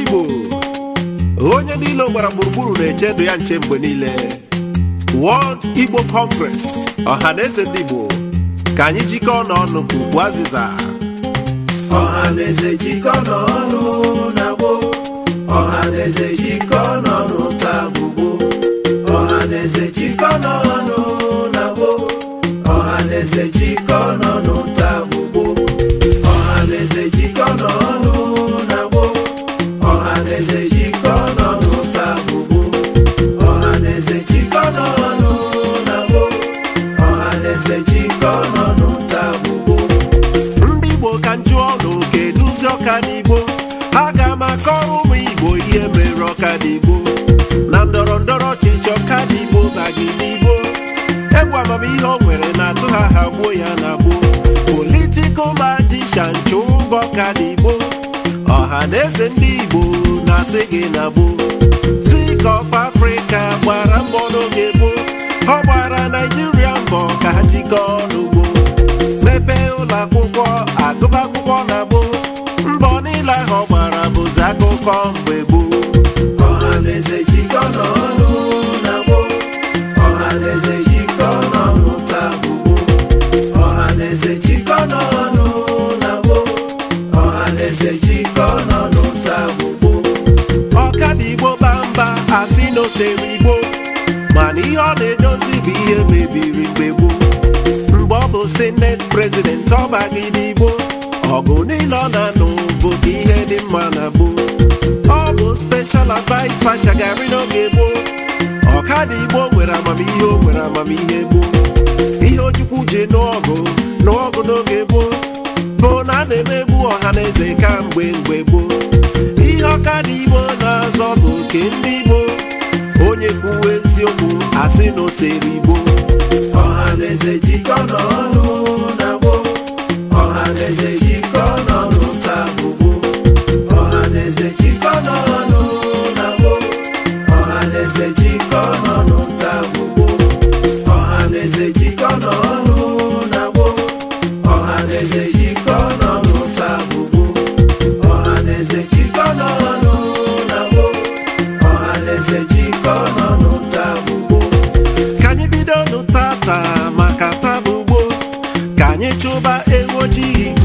Igbo onye niile gbara gburugburu na-eche ndụ ya nche mgbe niile World Igbo Congress ọha na eze ndị Igbo ka anyị jikọọ n'ọnụ ọnụ ugwu azịza ọha na eze n'ọnụ na gboo ọha na eze n'ọnụ taa gbogbo Ọhaneze na n'ọnụ na gboo n'ọnụ ndị igbo ka njụọ na oke ọka n'igbo ha ga-ama ụmụ igbo ihe mere ọka na ndọrọ ndọrọ ọchịchị ọka n'igbo bagị n'igbo egwu amamihe o nwere na-atụ ha ha gbuo ya na gbuo politikal majisha chụba ọka n'igbo ọha na eze ndị igbo na-asị gị na gboo si ka of Africa gbara mbọ n'oge gboo ọ gbara Naijiria mbọ ka ha jikọọ agụba akwụkwọ agụba akwụkwọ na gboo mbọ niile ahụ ọ gbara bụzi akụkọ mgbe gboo ọhaneze na gboo ọhaneze jikọ n'ọnụ taa bụ gboo na gboo ọhaneze jikọ n'ọnụ taa bụ gboo ọkada igbo bamba asị na o tere igbo mana ihe ọ na-edozi bụ ihe mebiri mgbe gboo senate president ọbagide n'igbo. ọgụ niile ọ na-anụ bụ ihe dị mma na gboo ọ bụ speshal advice Fasha Gari n'oge gboo ọkada igbo nwere amamihe o nwere amamihe gboo ihe ojukwu ji n'ọgụ n'ọgụ n'oge gboo bụ na a na-emegbu ọha na eze ka mgbe mgbe gboo ihe ọkada igbo na-azọ bụ oke ndị igbo onye kwuwe eziokwu asị na oseri igbo ọha na eze jikọ n'ọnụ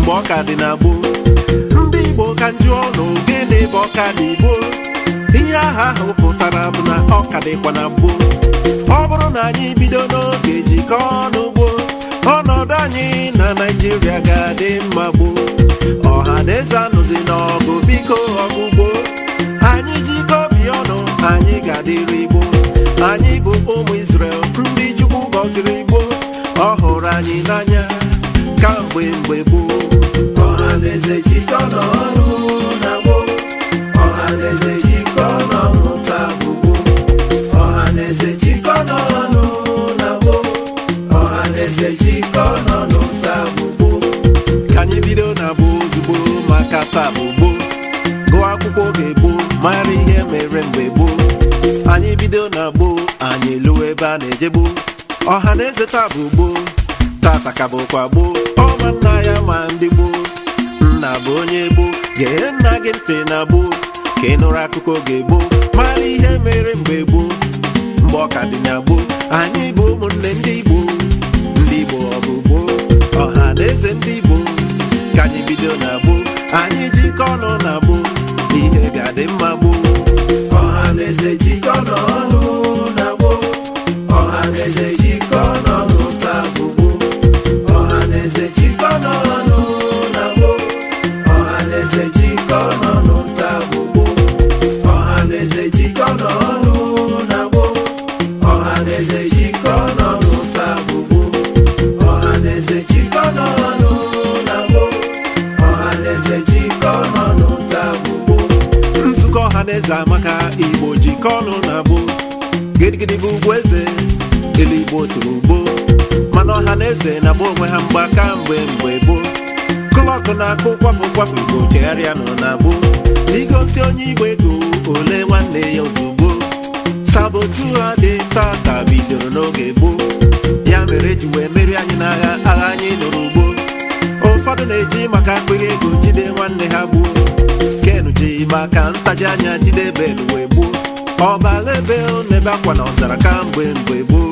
mgbe ọka dị na ndị igbo ka njụọ na ogene bụ ọka dị igbo ihe aha ahụ pụtara bụ na ọka dịkwa na ọ bụrụ na anyị bido n'oge jikọọ ọnụ ọnọdụ anyị na naijiria ga-adị mma gboo ọha na eze anụzi n'ọgụ biko ọgụgbo anyị jikọ obi ọnụ anyị ga-adịrị igbo anyị bụ ụmụ isrel ndị Chukwu gọziri igbo ọ hụrụ anyị n'anya ka mgbe mgbe gboo ọhaneze na gboo n'ọnụ ka gboo ka anyị bido na bụ ozugbo maka taa bụ gboo gụọ akwụkwọ oge gboo mara ihe mere mgbe gboo anyị bido na gboo anyị elu ebe a na-eje gboo ọha na eze taa bụ gboo tata ka bụkwa gboo ama nna ya ma ndị gboo nna bụ onye gboo ga gee nna gị ntị na gboo ka ị nụrụ akụkọ ga egboo mara ihe mere mgbe gboo mgbe ọka dị na gboo anyị bụ ụmụnne ndị igbo ndị igbo ọ ọha na eze ndị igbo ka anyị bido na gboo anyị jikọ ọnụ na gboo ihe ga-adị mma gboo ọha na eze jikọ n'ọnụ na gboo ọha na eze jikọ n'ọnụ ọha adaeze amaka igbo jikọ ọnụ na abụ gidigidi bụ ugwu eze igbo tụrụ ugbo mana ọha na eze na-agba onwe ha mgba kamgbe mgbe mgbe gboo kụlọkụ na-akụ kwapụ kwapụ igbo chegharịa nọ na abụ igosi onye igbo ego ole nwanne ya ozugbo sabotu ha dị tata bidoro n'oge gboo ya mere eji wee merie anyị n'agha agha anyị lụrụ ugbo ụfọdụ na-eji maka akpịrị ego jide nwanne ha gbuo kenu ji maka ji anya jidebe mgbe gboo ọbala ebe na-ebe akwa na ọzara kamgbe mgbe gboo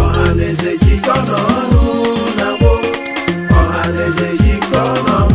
ọhaneze jikọ n'ọnụ na gboo ọhaneze jikọ n'ọnụ